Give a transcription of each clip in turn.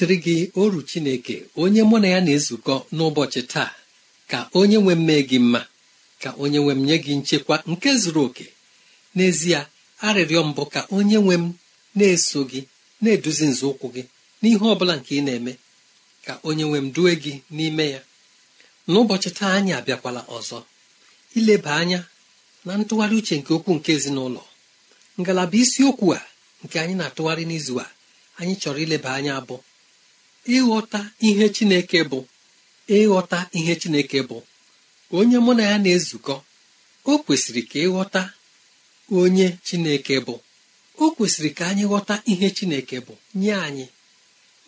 dịrị gị oru chineke onye mụ na ya na-ezukọ n'ụbọchị taa ka onye nwe mmee gị mma ka onye nwe m nye gị nchekwa nke zuru oke n'ezie arịrịọ mbụ ka onye nwe m na-eso gị na-eduzi nzọụkwụ gị n'ihe ọ bụla nke ị na-eme ka onye nwe m due gị n'ime ya n'ụbọchị taa anyị abịakwala ọzọ ileba anya na ntụgharị uche nke okwu nke ezinụlọ ngalaba isiokwu a nke anyị na-atụgharị n'izu a anyị chọrọ ileba anya abụ ịghọta ihe chineke bụ ịghọta ihe chineke bụ onye mụ na ya na-ezukọ o kwesịrị ka ịghọta onye chineke bụ o kwesịrị ka anyị ghọta ihe chineke bụ nye anyị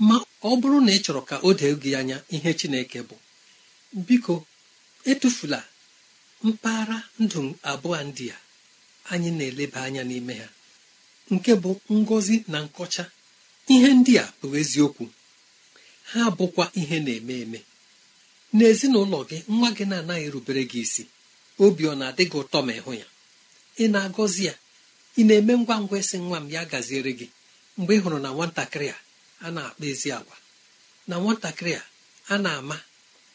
ma ọ bụrụ na ị chọrọ ka o dee gị anya ihe chineke bụ biko etufula mpaghara ndụ abụọ ndị a anyị na-eleba anya n'ime ha nke bụ ngọzi na nkọcha ihe ndị a bụ eziokwu ha bụkwa ihe na-eme eme n'ezinụlọ gị nwa gị na-anaghị erubere gị isi obi ọ na-adị gị ụtọ ma ịhụ ya ị na-agọzi ya ị na-eme ngwa ngwa ịsị nwa m ya gaziere gị mgbe ị hụrụ na nwatakịrị a a na-akpa ezi agwa na nwatakịrị a a na-ama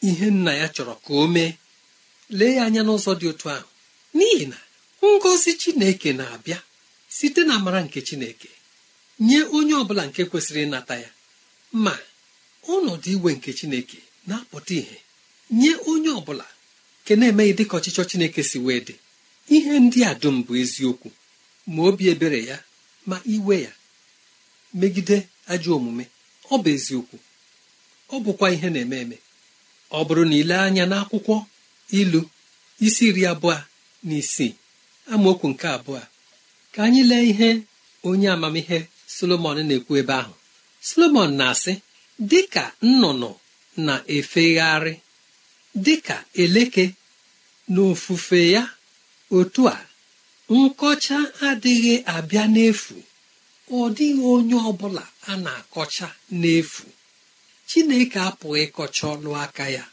ihe nna ya chọrọ ka o mee lee ya anya n'ụzọ dị otu ahụ n'ihi na ngọzi chineke na-abịa site na amara nke chineke nye onye ọ bụla nke kwesịrị ịnata ya ma ọnọdụ iwe nke chineke na-apụta ihe nye onye ọ bụla nke na-emeghị dịka ọchịchọ chineke si wee dị ihe ndị a dum bụ eziokwu ma obi ebere ya ma iwe ya megide ajọ omume ọ bụ eziokwu ọ bụkwa ihe na-eme eme ọ bụrụ na ile anya n'akwụkwọ ilu isi iri abụọ na isii amaokwu nke abụọ ka anyị lee ihe onye amamihe solomon na-ekwu ebe ahụ solomon na-asị dịka nnụnụ na-efegharị dịka eleke n'ofufe ya otu a nkọcha adịghị abịa n'efu ọ dịghị onye ọ bụla a na-akọcha n'efu chineke apụghị ịkọcha ọlụ aka ya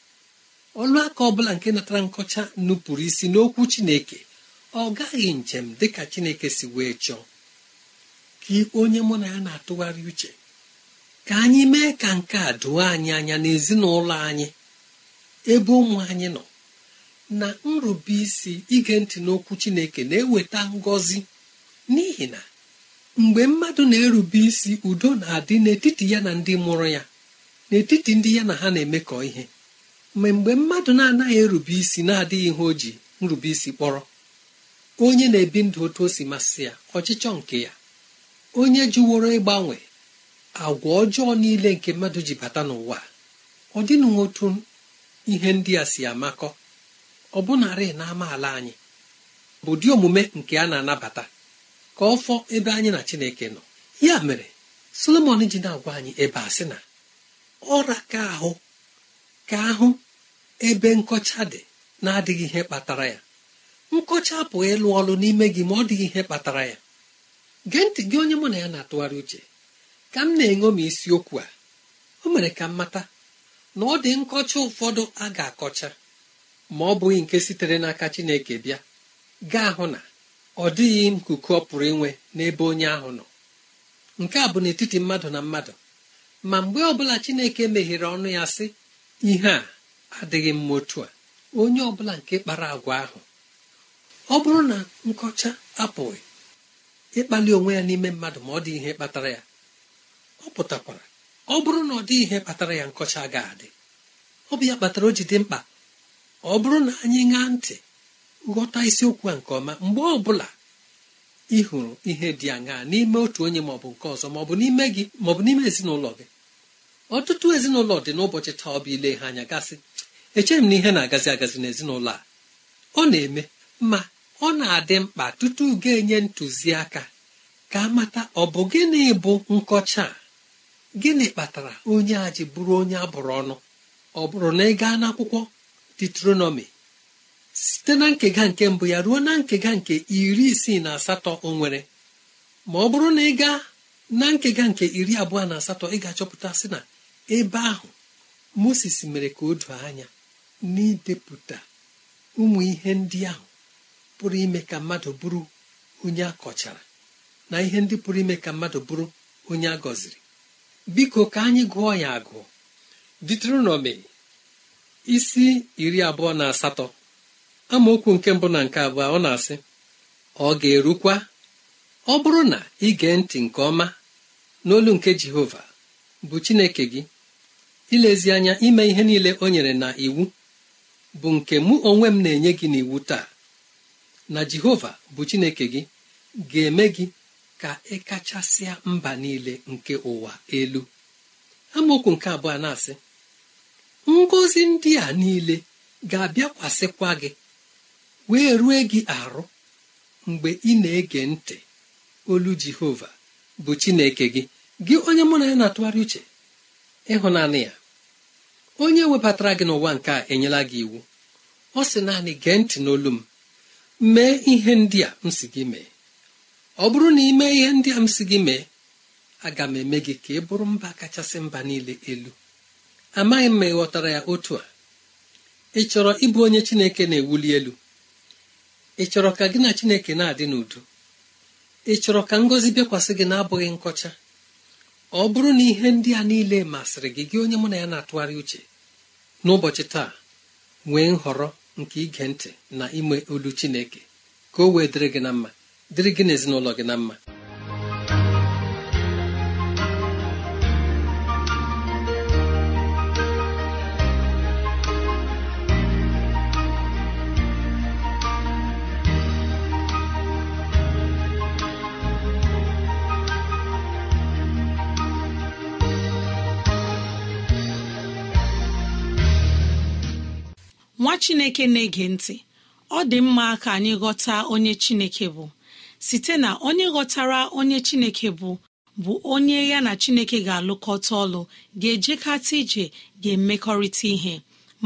ọlụaka aka ọ nke natara nkọcha nupụrụ isi n'okwu chineke ọ gaghị njem dịka chineke si wee chọọ ka onye mụ na ya na-atụgharị uche ka anyị mee ka nke a doo anyị anya n'ezinụlọ anyị ebe ụmụ anyị nọ na nrube isi ige ntị n'okwu chineke na-eweta ngọzi n'ihi na mgbe mmadụ na-erube isi udo na-adị n'etiti ya na ndị mụrụ ya n'etiti ndị ya na ha na-emekọ ihe ma mgbe mmadụ na-anaghị erube isi na-adịghị ihe o ji nrube isi kpọrọ onye na-ebi ndụ otu o si masị ya ọchịchọ nke ya onye jụworo ịgbanwe agwa ọjọọ niile nke mmadụ ji bata n'ụwa ọ dịnụ otu ihe ndị a si amakọ ọ bụnarị na amaala anyị bụ dị omume nke a na-anabata ka ọ fọọ ebe anyị na chineke nọ ya mere solomon ji na-agwa anyị ebe a sị na ọra ka ahụ ka ahụ ebe nkọcha dị na-adịghị ihe kpatara ya nkọcha bụ ịlụ ọlụ n'ime gị ma ọ dịghị ihe kpatara ya gee ntị gị onye mụ na ya na-atụgharị uche ka m na-eṅomi isiokwu a o mere ka m mata na ọ dị nkọcha ụfọdụ a ga-akọcha ma ọ bụghị nke sitere n'aka Chineke bịa gaa hụ na ọ dịghị nkuku ọ pụrụ inwe n'ebe onye ahụ nọ nke a bụ n'etiti mmadụ na mmadụ ma mgbe ọbụla Chineke meghere ọnụ ya sị ihe a adịghị mma otu a onye ọbụla nke kpara agwa ahụ ọ bụrụ na nkọcha apụghị ịkpali onwe ya n'ime mmadụ ma ọ dị ihe kpatara ya ọ pụtakwara ọ bụrụ na ọ dị ihe kpatara ya nkọcha ga-adị ọ bụ ya kpatara o ji dị mkpa ọ bụrụ na anyị ṅaa ntị ghọta isiokwu a nke ọma mgbe ọ bụla ị hụrụ ihe dị aṅaa n'ime otu onye ma ọ bụ nke ọzọ ma ọ bụ n'ime gị ma ọ bụ n'ime ezinụlọ gị ọtụtụ ezinụlọ dị n'ụbọchị taa ọ bụ ile ha anya gasị echeghị m na ihe na-agazi agazi n'ezinụlọ a ọ na-eme ma ọ na-adị mkpa tutu ga-enye ntụziaka ka amata ọ bụ gịnị bụ nkọcha a gịnị kpatara onye a ji bụrụ onye abụrụ ọnụ ọ bụrụ na ị gaa n'akwụkwọ detronomi site na nkega nke mbụ ya ruo na nkega nke iri isii na asatọ o nwere ma ọ bụrụ na ị gaa na nkega nke iri abụọ na asatọ ị ga-achọpụta sị na ebe ahụ moses mere ka o doo anya n'idepụta ụmụ ihe ndị ahụ pụrụ ime ka mmadụ bụrụ onye akọchara na ihe ndị pụrụ ime ka mmadụ bụrụ onye a gọziri biko ka anyị gụọ ya agụ diteronomi isi iri abụọ na asatọ amaokwu nke mbụ na nke abụọ ọ na-asị ọ ga-erukwa ọ bụrụ na ị gee ntị nke ọma n'olu nke jehova bụ chineke gị ilezi anya ime ihe niile o nyere na iwu bụ nke mụ onwe m na-enye gị n'iwu taa na jehova bụ chineke gị ga-eme gị ka ị e kachasịa mba niile nke ụwa elu amaokwu nke abụọ na-asị ngọzi ndị a niile ga-abịakwasịkwa gị wee rue gị arụ mgbe ị na-ege ntị olu jehova bụ chineke gị gị onye mụ na ya na-atụgharị uche ịhụnanị ya onye webatara gị n'ụwa nke a enyela gị iwu ọ sị naanị gee ntị n'olu m mee ihe ndị a m si gị mee ọ bụrụ na ime ihe ndị a m si gị mee aga m eme gị ka ị bụrụ mba kachasị mba niile elu amaghị m ma ị ghọtara ya otu a ị chọrọ ịbụ onye chineke na-ewuli elu ị chọrọ ka gị na chineke na-adị n'udo ị chọrọ ka ngọzi bịakwasị gị na-abụghị nkọcha ọ bụrụ na ihe ndị a niile masịrị gị gị onye mụ na ya na-atụgharị uche n'ụbọchị taa nwee nhọrọ nke ige ntị na ime olu chineke ka o wee dịrị gị na mma dịrị gị na ezinụlọ gị na mma nwa chineke na-ege ntị ọ dị mma ka anyị ghọta onye chineke bụ site na onye ghọtara onye chineke bụ bụ onye ya na chineke ga-alụkọta ọlụ ga-ejekata ije ga-emekọrịta ihe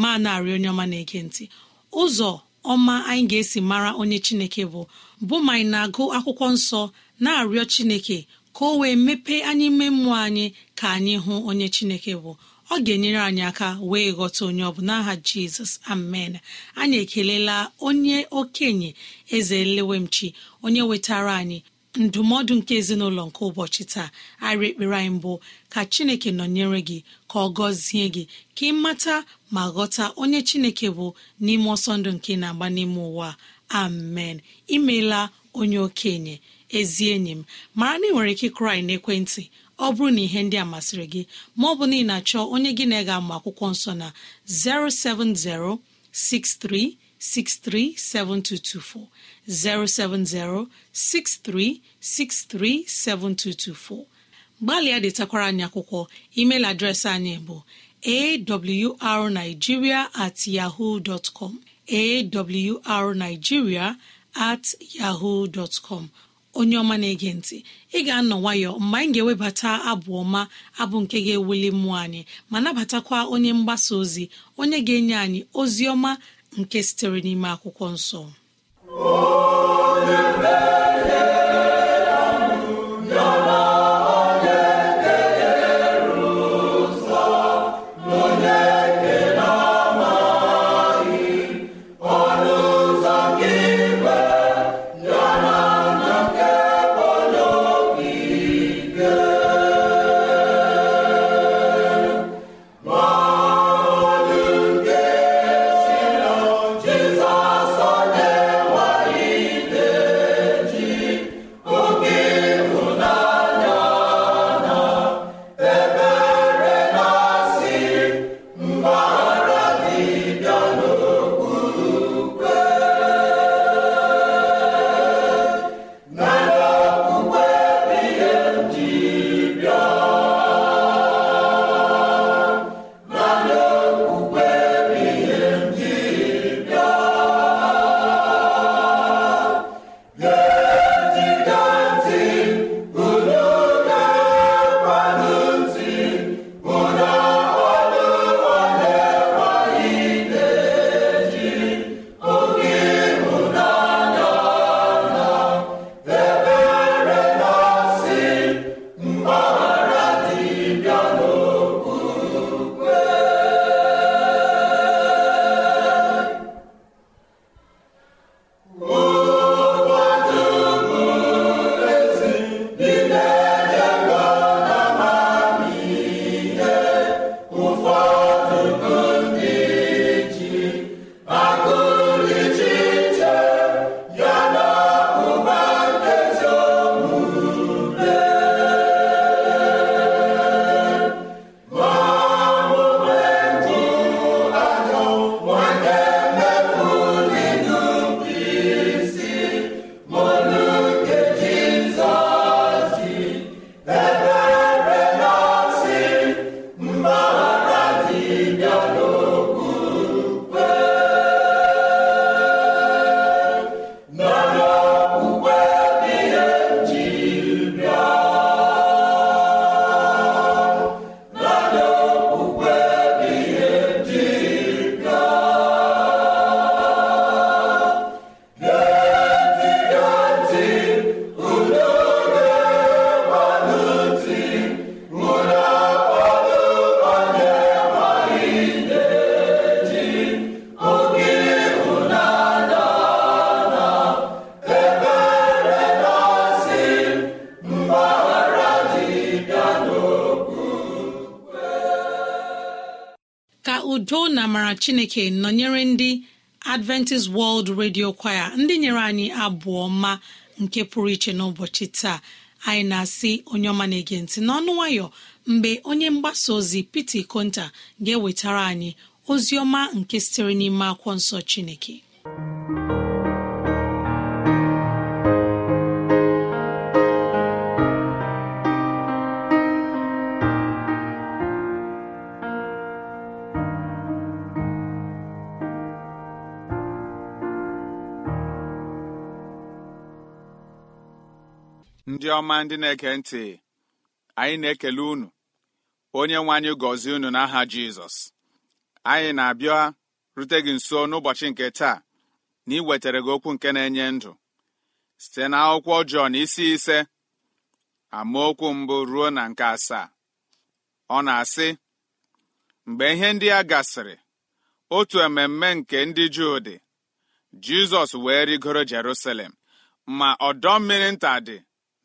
ma narị onye ọma na-ege ntị ụzọ ọma anyị ga-esi mara onye chineke bụ bụ ma anyị na-agụ akwụkwọ nsọ na-arịọ chineke ka o wee mepee anyị ime mmụọ anyị ka anyị hụ onye chineke bụ ọ ga-enyere anyị aka wee ghọta onye ọ bụ n'aha jizọs amen anyị ekelela onye okenye eze lewemchi onye wetara anyị ndụmọdụ nke ezinụlọ nke ụbọchị taa arị ekpere anyị mbụ ka chineke nọnyere gị ka ọ gọzie gị ka ị mata ma ghọta onye chineke bụ n'ime ọsọ ndụ nke na-agba n'ime ụwa amen imeela onye okenye ezi enyi m mara na ị nwere ike kụrụ n'ekwentị ọ bụrụ na ihe ndị a masịrị gị ma ọ bụ na na-achọ onye gị na ege ga akwụkwọ nsọ na 07063637224 07063637224 gbalịa detakwara anyị akwụkwọ email adreesị anyị bụ awrnigeria at yahoo at yahoo onye ọma na-ege ntị ị ga-anọ nwayọ mgbe anyị ga-ewebata abụ ọma abụ nke ga-ewuli mmụọ anyị ma nabatakwa onye mgbasa ozi onye ga-enye anyị ozi ọma nke sitere n'ime akwụkwọ nsọ chineke nọnyere ndị adventist world radio kwaya ndị nyere anyị abụọ ma nke pụrụ iche n'ụbọchị taa anyị na-asị onye ọma na-ege ntị n'ọnụ nwayọ mgbe onye mgbasa ozi pete konta ga-ewetara anyị ozi ọma nke sitere n'ime akwụkwọ nsọ chineke ọma ndị na-ege ntị anyị na-ekele unu onye nwe anyị gọzie unu n'aha jizọs anyị na-abịa rute gị nso n'ụbọchị nke taa na ị wetara gị okwu nke na-enye ndụ site na akwụkwọ ọjọọ na isi ise amaokwu mbụ ruo na nke asaa ọ na-asị mgbe ihe ndị a gasịrị otu ememme nke ndị juu dị jizọs wee rigoro jerusalem ma ọdọ mmiri nta dị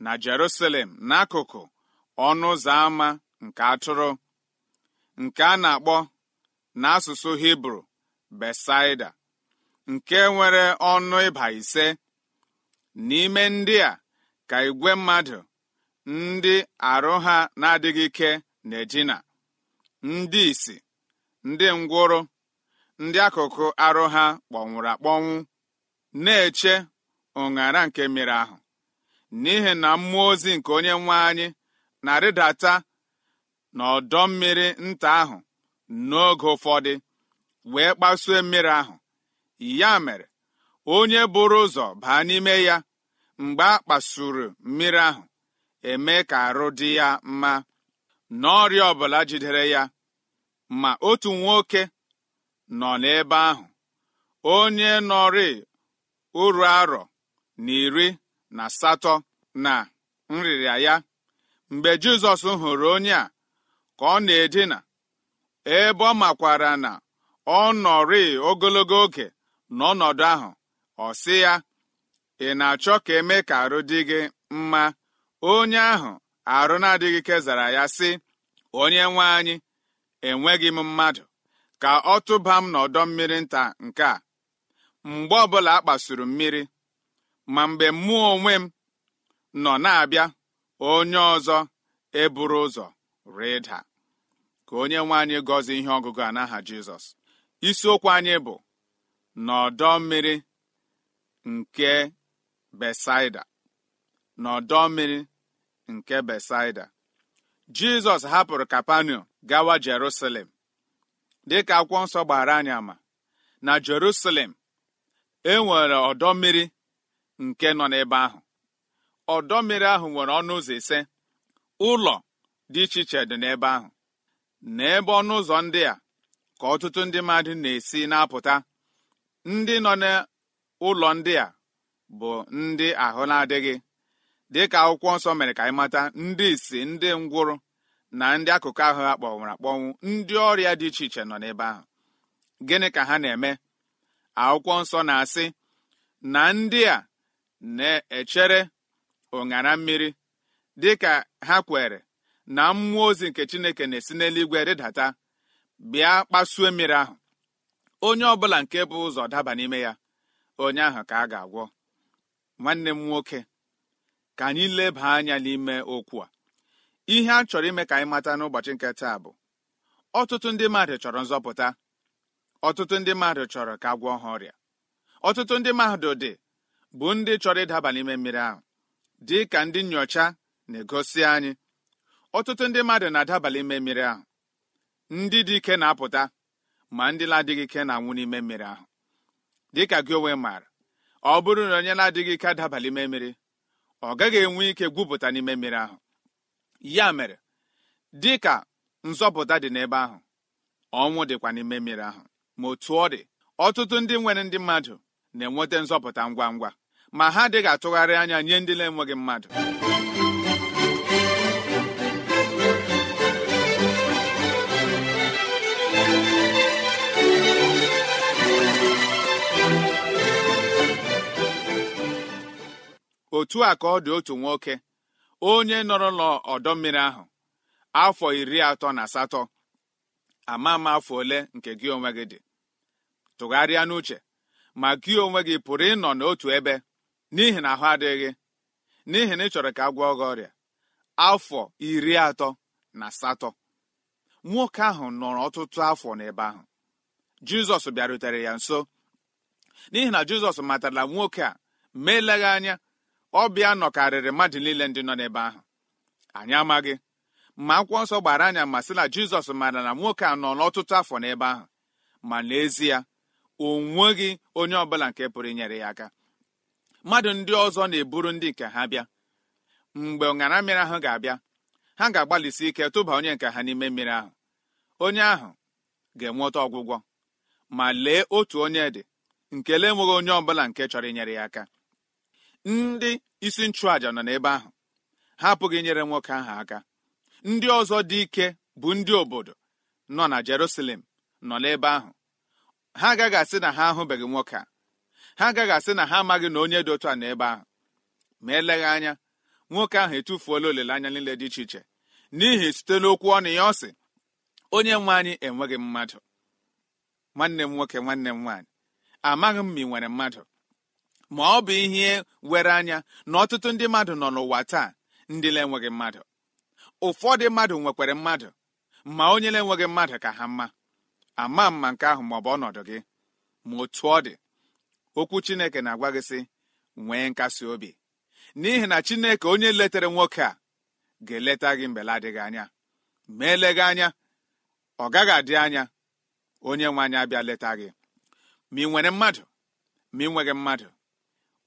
na Jerusalem n'akụkụ ọnụ ụzọ ámá nke atụrụ nke a na-akpọ n'asụsụ Hibru Besaida nke nwere ọnụ ịba ise n'ime ndị a ka igwe mmadụ ndị arụ ha na-adịghị ike na-edina ndị isi ndị ngwụrụ ndị akụkụ arụ ha kpọnwụrụ akpọnwụ na-eche ụṅara nke mmiri ahụ n'ihi na mmụọ ozi nke onye nwe anyị na-arịdata n'ọdọ mmiri nta ahụ n'oge ụfọdụ wee kpasuo mmiri ahụ ya mere onye bụrụ ụzọ baa n'ime ya mgbe a kpasuru mmiri ahụ eme ka arụ dị ya mma na ọbụla jidere ya ma otu nwoke nọ n'ebe ahụ onye nọrị uru arọ na iri na asatọ na nrịrịa ya mgbe jizọs hụrụ onye a ka ọ na-edina ebe ọ makwara na ọ nọrị ogologo oge n'ọnọdụ ahụ ọ sị ya ị na-achọ ka eme ka arụ dị gị mma onye ahụ arụ na-adịghị kezara ya sị onye nwe anyị enweghị m mmadụ ka ọ tụba m n'ọdọ mmiri nta nke a mgbe ọbụla a kpasuru mmiri ma mgbe mmụọ onwe m nọ na-abịa onye ọzọ eburu ụzọ rịda ka onye nwe anyị gọzie ihe ọgụgụ a n'aha jizọs isiokwu anyị bụ n'ọdọ mmiri nke besaida n'ọdọ mmiri nke besaida jizọs hapụrụ kapanu gawa jerusalem dịka akwụkwọ nsọ gbara anyị ama na jerusalem e nwere ọdọ mmiri nke nọ n'ebe ahụ ọdọ mmiri ahụ nwere ọnụ ụzọ ise ụlọ dị iche iche dị n'ebe ahụ n'ebe ọnụ ụzọ ndị a ka ọtụtụ ndị mmadụ na-esi na-apụta ndị nọ n'ụlọ ndị a bụ ndị ahụ na-adịghị dịka akwụkwọ nsọ mere ka anyị mata ndị isi ndị ngwụrụ na ndị akụkụ ahụ ha kpọnwụrụ akpọnwụ ndị ọrịa dị iche iche nọ n'ebe ahụ gịnị ka ha na-eme akwụkwọ nsọ na-asị na ndị a na-echere ụṅara mmiri dị ka ha kwere na mmụọ ozi nke chineke na-esi n'eluigwe rịdata bịa kpasuo mmiri ahụ onye ọbụla nke bụ ụzọ daba n'ime ya onye ahụ ka a ga-agwọ nwanne m nwoke ka anyị leba anya n'ime okwu a ihe a chọrọ ime ka anyị mata n'ụbọchị nke taa bụ ọtụtụ ndị mmadụ chọrọ nzọpụta ọtụtụ ndị mmadụ chọrọ ka gwọọ ha ọrịa ọtụtụ ndị mmadụ dị bụ ndị chọrọ ịdaba n'ime mmiri ahụ dị ka ndị nnyocha na-egosi anyị ọtụtụ ndị mmadụ na-adaba n'ime mmiri ahụ ndị dị ike na-apụta ma ndị na-adịghị ike na-anwụ n'ime mmiri ahụ dị ka gị onwe maara ọ bụrụ na onye na-adịghị ike adaba n'ime mmiri ọ gaghị enwe ike gwupụta n'ime mmiri ahụ ya mere dị ka nzọpụta dị n'ebe ahụ ọnwụ dịkwa n'ime mmiri ahụ ma otu ọ dị ọtụtụ ndị nwere ndị mmadụ na-enweta nzọpụta ngwa ngwa ma ha adịghị atụgharị anya nye ndị na-enweghị mmadụ otu a ka ọ dị otu nwoke onye nọrọ ọdọ mmiri ahụ afọ iri atọ na asatọ ama ama afọ ole nke gị onwe gị dị tụgharịa n'uche ma gị onwe gị pụrụ ịnọ n'otu ebe n'ihi na ahụ adịghị n'ihi na ị chọrọ ka a gwọọ gị ọrịa afọ iri atọ na asatọ nwoke ahụ nọrọ ọtụtụ afọ n'ebe ahụ jizọs bịarutere ya nso n'ihi na jizọs matara nwoke a ma anya ọbịa nọkarịrị mmadụ niile ndị nọ n'ebe ahụ anyị amaghị ma akwụkwọ nsọ gbara anya ma sị na jizọs mara na nwoke a nọ n'ọtụtụ afọ n'ebe ahụ ma n'ezie o nweghị onye ọbụla nke pụrụ inyere ya aka mmadụ ndị ọzọ na-eburu ndị nke ha bịa mgbe ọṅara mmiri ahụ ga-abịa ha ga-agbalịsi ike tụba onye nke ha n'ime mmiri ahụ onye ahụ ga-enweta ọgwụgwọ ma lee otu onye dị nke lee enweghị onye ọbụla nke chọrọ inyere ya aka ndị isi nchụàja nọ n'ebe ahụ ha apụghị inyere nwoke ahụ aka ndị ọzọ dị ike bụ ndị obodo nọ na Jerusalem nọ n'ebe ahụ ha agaghị asị na ha ahụbeghị nwoke a ha agaghị asị na ha amaghị na onye dị otu a ebe ahụ ma eleghị anya nwoke ahụ etufuola olileanya niile dị iche iche n'ihi site n'okwu ọnụ ya ọ sị onye nwe anyị enweghị mmadụ nwanne m nwoke nwanne m nwaanyị amaghị m ma ị nwere mmadụ ma ọ bụ ihe were anya na ọtụtụ ndị mmadụ nọ n'ụwa taa ndị na-enweghị mmadụ ụfọdụ mmadụ nwekwara mmadụ ma onye na-enweghị mmadụ ka ha mma ama mma nke ahụ ma ọ bụ ọnọdụ gị ma otu ọ dị okwu chineke na-agwa gị sị nwee nkasi obi n'ihi na chineke onye letere nwoke a ga-eleta gị mgbe adịghị anya ma eleghị anya ọ gaghị adị anya onye nwe anyị abịa leta gị ma ị nwere mmadụ ma ị nweghị mmadụ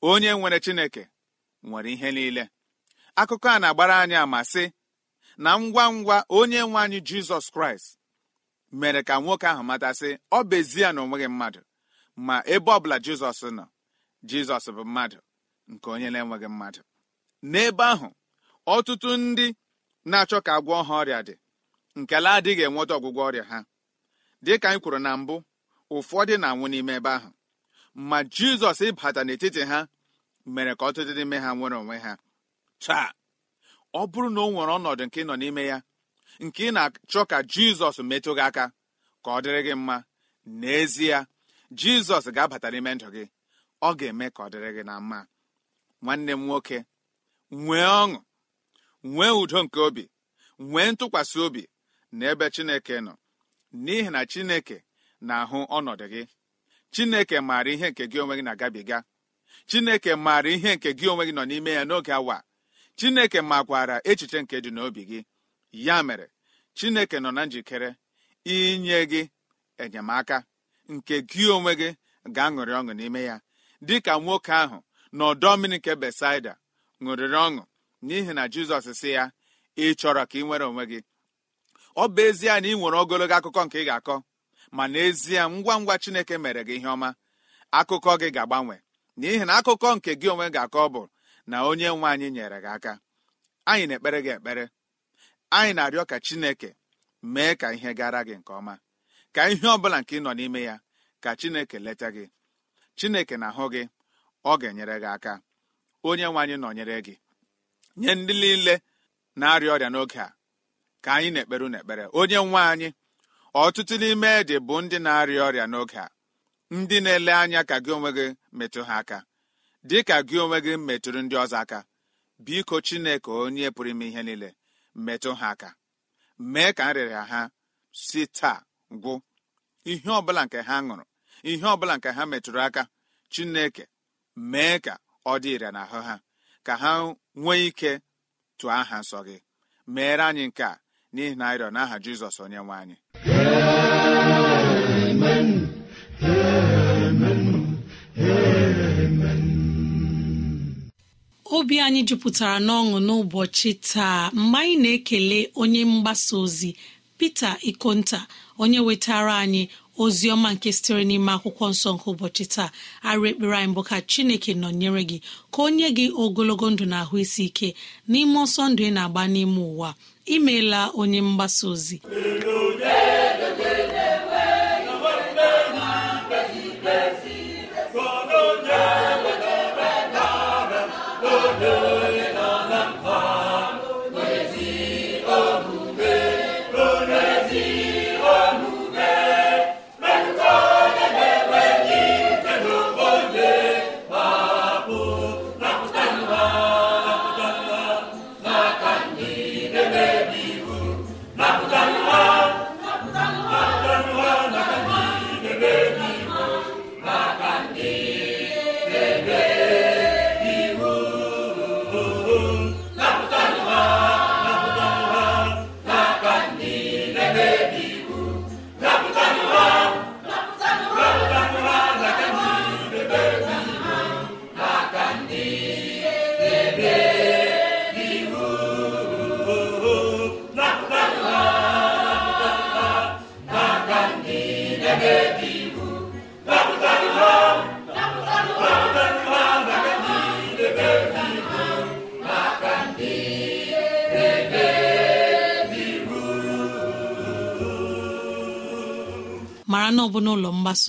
onye nwere chineke nwere ihe niile akụkọ a na-agbara anya ma sị na ngwa ngwa onye nwe anyị jizọs kraịst mere ka nwoke ahụ matasị ọ bụ ezie na onweghị mmadụ ma ebe ọbụla jizọs nọ jizọs bụ mmadụ nke onye na-enweghị mmadụ n'ebe ahụ ọtụtụ ndị na-achọ ka agwọ ha ọrịa dị nkele adịghị enweta ọgwụgwọ ọrịa ha dịka anyị kwuru na mbụ ụfọdụ na-anwụ n'ime ebe ahụ ma jizọs ịbata n'etiti ha mere ka ọtụtụ n'ime ha nwere onwe ha taa ọ bụrụ na ọ nwere ọnọdụ nke ị nọ n'ime ya nke ị na-achọ ka jizọs metụ gị aka ka ọ dịrị gị mma n'ezie jizọs ga-abata n'ime ndụ gị ọ ga-eme ka ọ dịrị gị na mma nwanne m nwoke nwee ọṅụ nwee udo nke obi nwee ntụkwasị obi na ebe chineke nọ n'ihi na chineke na-ahụ ọnọdụ gị chineke maara ihe nke gị onwe gị na-agabiga chineke maara ihe nke gị onwe gị nọ n'ime ya n'oge awa chineke makwara echiche nke dị n'obi gị ya mere chineke nọ na njikere inye gị enyemaka nke gị onwe gị ga-aṅụrị ọṅụ n'ime ya dịka nwoke ahụ na ọdọ mmiri nke besaida ṅụrịrị ọṅụ n'ihi na jizọs si ya ị chọrọ ka ị nwere onwe gị ọ bụ ezie na ị nwere ogologo akụkọ nke ị ga-akọ ma n'ezie ngwa ngwa chineke mere gị ihe ọma akụkọ gị ga-agbanwe n'ihi na akụkọ nke gị onwe ga-akọ bụ na onye nwe anyị nyere gị aka anyị na-ekpere gị ekpere anyị na-arịọ ka chineke mee ka ihe gara gị nke ọma ka ihe ọ bụla nke ị nọ n'ime ya ka chineke leta gị chineke na-ahụ gị ọ ga-enyere gị aka onye nwe anyị nọnyere gị nye ndị niile na-arịa ọrịa n'oge a ka anyị na-ekpere n'ekpere. onye nwe anyị ọtụtụ n'ime dị bụ ndị na-arịa ọrịa n'oge a ndị na-ele anya ka gị onwe gị metụ ha aka dị ka gị onwe gị metụrụ ndị ọzọ aka biko chineke onye pụrụ ime ihe niile metụ ha aka mee ka nrịrịa ha si taa gwụ ihe ọbụla nke ha ṅụrụ ihe ọbụla nke ha metụrụ aka chineke mee ka ọ dị ire n'ahụ ha ka ha nwee ike tụọ aha nsọ gị meere anyị nke a n'ihi na arịọ n'aha jizọs onye nwe anyị obi anyị jupụtara n'ọṅụ n'ụbọchị taa mgbe anyị na-ekele onye mgbasa ozi pete ikonta onye wetara anyị ozi ọma nke sitere n'ime akwụkwọ nsọ nke ụbọchị taa arịa ekpere anyị bụ ka chineke nọnyere gị ka onye gị ogologo ndụ na ahụ isi ike n'ime ọsọ ndụ ị na-agba n'ime ụwa imeela onye mgbasa ozi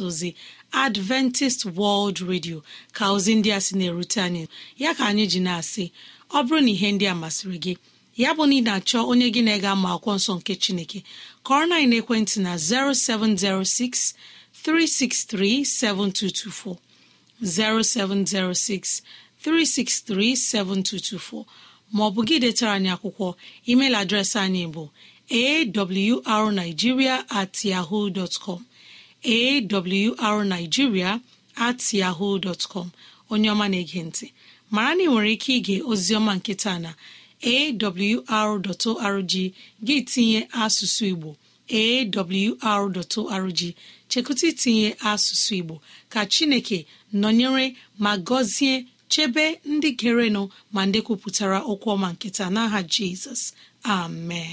mgbasa ozi adventist world radio ka ozi ndị a sị na-erute anyị ya ka anyị ji na-asị ọ bụrụ na ihe ndị a masịrị gị ya bụ na ị na-achọ onye gị na ega ama akwụkwọ nsọ nke chineke kọrọ na ekwentị na 0706 363 7224 0706 363 7224 maọbụ gị detara anyị akwụkwọ email adreesị anyị bụ awrnigeria at yahoo com awrnigeria at yahoo onye ọma na-ege ntị mara na ị nwere ike ige oziọma nkịta na awr.org gị tinye asụsụ igbo awr.org chekụta itinye asụsụ igbo ka chineke nọnyere ma gọzie chebe ndị gerenụ ma ndị kwupụtara okwu ọma nkịta n'aha jizọs amen